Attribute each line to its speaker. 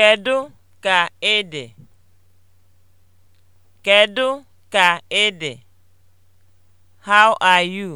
Speaker 1: Kedụ ka ị dị? ka ị dị? How are you?